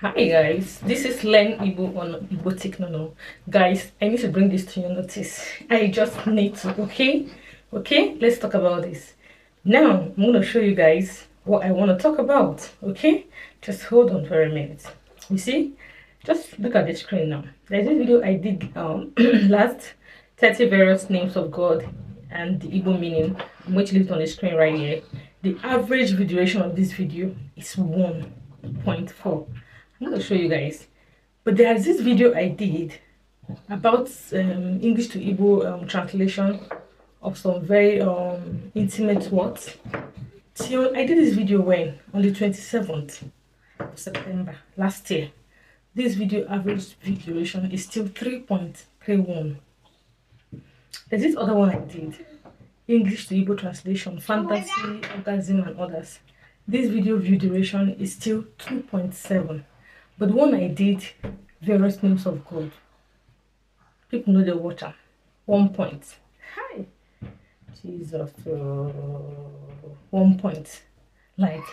Hi guys, this is Len Ibu on No No. Guys, I need to bring this to your notice. I just need to, okay? Okay, let's talk about this. Now, I'm going to show you guys what I want to talk about, okay? Just hold on for a minute. You see? Just look at the screen now. There's this video I did um, last 30 various names of God and the Igbo meaning, which is on the screen right here. The average duration of this video is 1.4 I'm going to show you guys. But there's this video I did about um, English to Igbo um, translation of some very um, intimate words. So I did this video when? On the 27th of September last year. This video average view duration is still 3.31. There's this other one I did. English to Igbo translation, fantasy, orgasm and others. This video view duration is still 2.7. But when I did, various names of God. People know the water. One point. Hi. Jesus. Oh. one point. Like,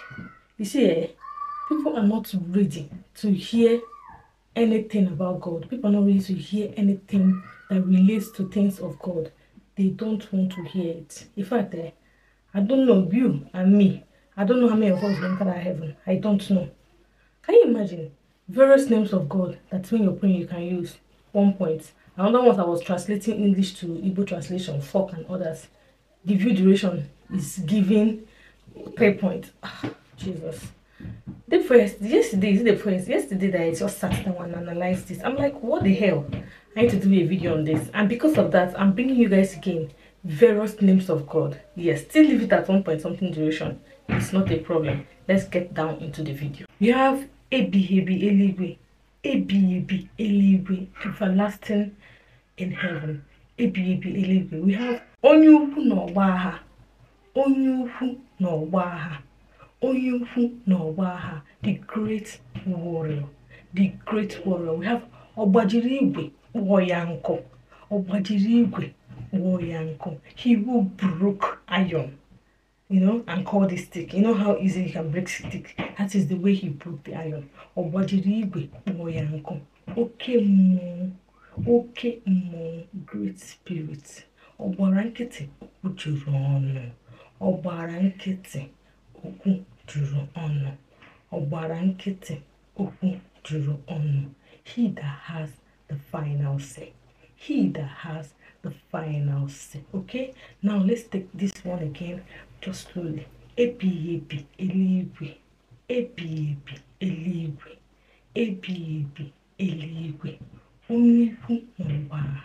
you see, eh, people are not ready to hear anything about God. People are not ready to hear anything that relates to things of God. They don't want to hear it. In fact, eh, I don't know you and me. I don't know how many of us enter heaven. I don't know. Can you imagine? various names of God that when you're praying you can use. One point. Another one I was translating English to Igbo translation, fork and others. The view duration is given pay point. Ah, Jesus. The first yesterday is the first yesterday that I just sat down and analyzed this. I'm like, what the hell? I need to do a video on this, and because of that, I'm bringing you guys again various names of God. Yes, still leave it at one point something duration. It's not a problem. Let's get down into the video. You have ebighiebi eluigwe ebighiebi eluigwe everlasting in heaven ebighiebi eluigwe we have onye ukwu na ọgba agha onye ukwu na ọgba agha onye ukwu n'ọgba agha the great warrior the great warrior we have ọgbajiri igwe kpụọ ya nkụ ọgbajiri igwe kpụọ ya nkụ he will broke iron you know, and call the stick. You know how easy you can break stick. That is the way he broke the iron. Obodiriwe Moyanko. Okay, mo. Okay, mo. Great spirit. Ọgbara nkịtị okwu juru ọnụ. Ọgbara nkịtị okwu juru He that has the final say. He that has the final say. Okay? Now let's take this one again Josoli ebighị ebi eluigwe ebighị ebi eluigwe ebighị ebi eluigwe onye ukwu n'ọgbagha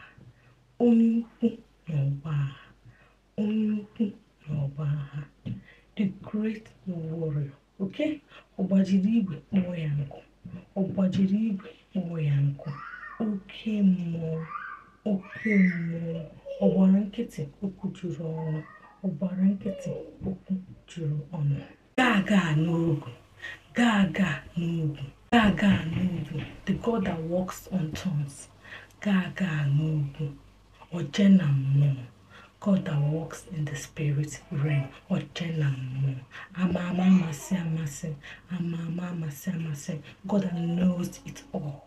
onye ukwu n'ọgbagha onye ukwu n'ọgbagha the great warrior oke ọgbajiri igwe kpọọ ya nkụ ọgbajiri igwe kpọọ ya nkụ oke mmụọ oke mmụọ ọ gbara nkịtị okwu juru ọnụ Ọbara nkịtị okwu juru ọnụ. Gaa gaa n'ugwu, gaa gaa n'ugwu, gaa gaa the God that works on thorns. Gaa gaa n'ugwu, oje na mmụọ. God that works in the spirit realm, oje na mmụọ. Ama ama amasị amasị, ama ama amasị amasị, God that knows it all.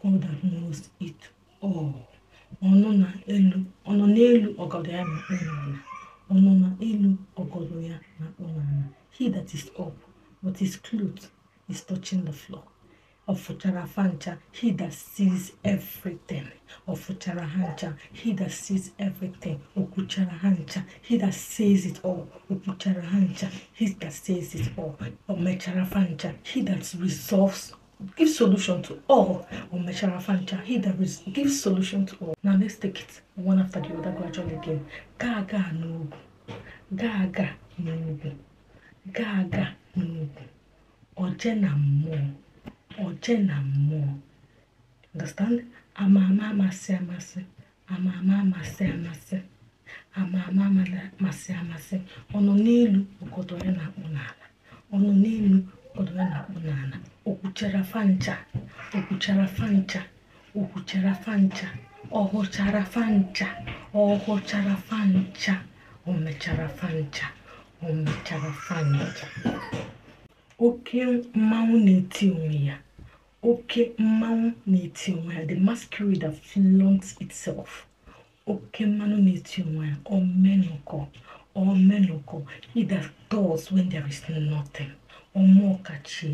God that knows it all. Ọnụ na elu, ọnụ n'elu ọgọdọ ya na okpuru ọnụma elu ọgọdọ ya na-akpọ he that is up but his cloth is touching the floor ọ fụchara afa ncha he that sees everything ọ fụchara ha ncha he that sees everything o kwuchara ha ncha he that says it all o kwuchara ha ncha he that says it all o mechara afa ncha he that resolves give solution to all or Meshara Fancha. He that gives solution to all. Now let's take it one after the other gradually again. Gaga no. ga-aga n'ugwu ga-aga n'ugwu oje na mmụọ oje na mmụọ understand ama ama amasị amasị ama amasị amasị ama ama amasị amasị ọnụ n'elu ogodo ya na-akpụ n'ala ọnụ n'elu ogodo ya na-akpụ n'ala okwuchara fancha okwuchara fancha okwuchara fancha ọhụchara fancha ọhụchara fancha ọmechara o mechara fancha oke mmanwụ na-eti onwe ya oke mmanwụ na-eti onwe ya the masquerade that flunks itself oke mmanụ na-eti onwe ya omenụkọ omenụkọ it that does when there is nothing ọmọkachi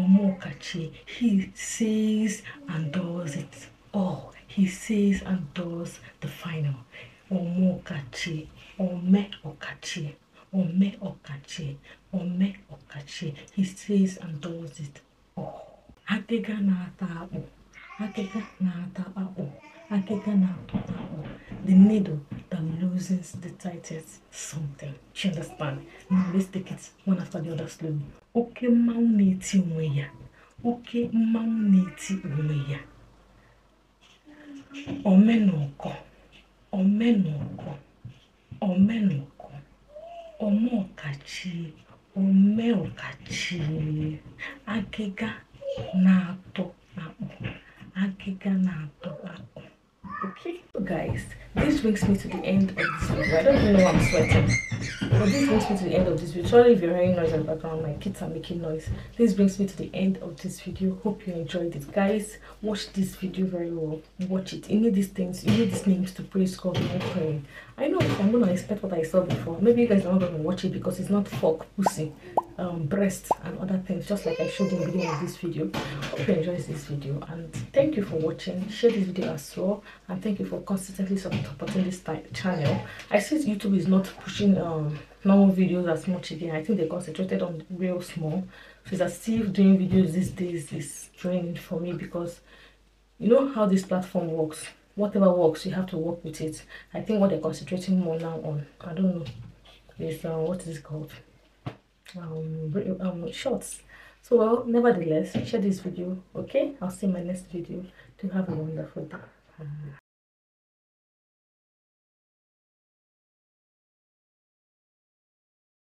ọmọkachi he says and does it all he says and does the final ọmọ ọ̀kàchì o ọ̀kàchì ọmẹ ọ̀kàchì ọmẹ ọ̀kàchì he says and does it all. akịga na-ata akpụ akịga na-ata akpụ akịga na-ata akpụ the needle that loses the tightest something you understand now let's take it one after the other slowly oke mmanwụ na-eti onwe ya oke mmanwụ na-eti onwe ya omenọkọ omenoko omenoko omeọkachi omeọkachi agịga na-atọ akpụ agịga na-atọ guys this brings me to the end of this video i don't even know i'm sweating but this brings me to the end of this video sorry if you're hearing noise in the background my kids are making noise this brings me to the end of this video hope you enjoyed it guys watch this video very well watch it you need these things you need these names to praise god and pray. i know i'm gonna expect what i saw before maybe you guys are not gonna watch it because it's not fuck pussy um, breast and other things just like I showed in the beginning of this video. Hope you enjoyed this video and thank you for watching. Share this video as well and thank you for consistently supporting this channel. I see YouTube is not pushing um, normal videos as much again. I think they concentrated on real small. So I still doing videos these days is draining for me because you know how this platform works. Whatever works, you have to work with it. I think what they're concentrating more now on, I don't know, is uh, what is it called? um, um, shorts. So, well, nevertheless, share this video, okay? I'll see my next video. Do have a wonderful day.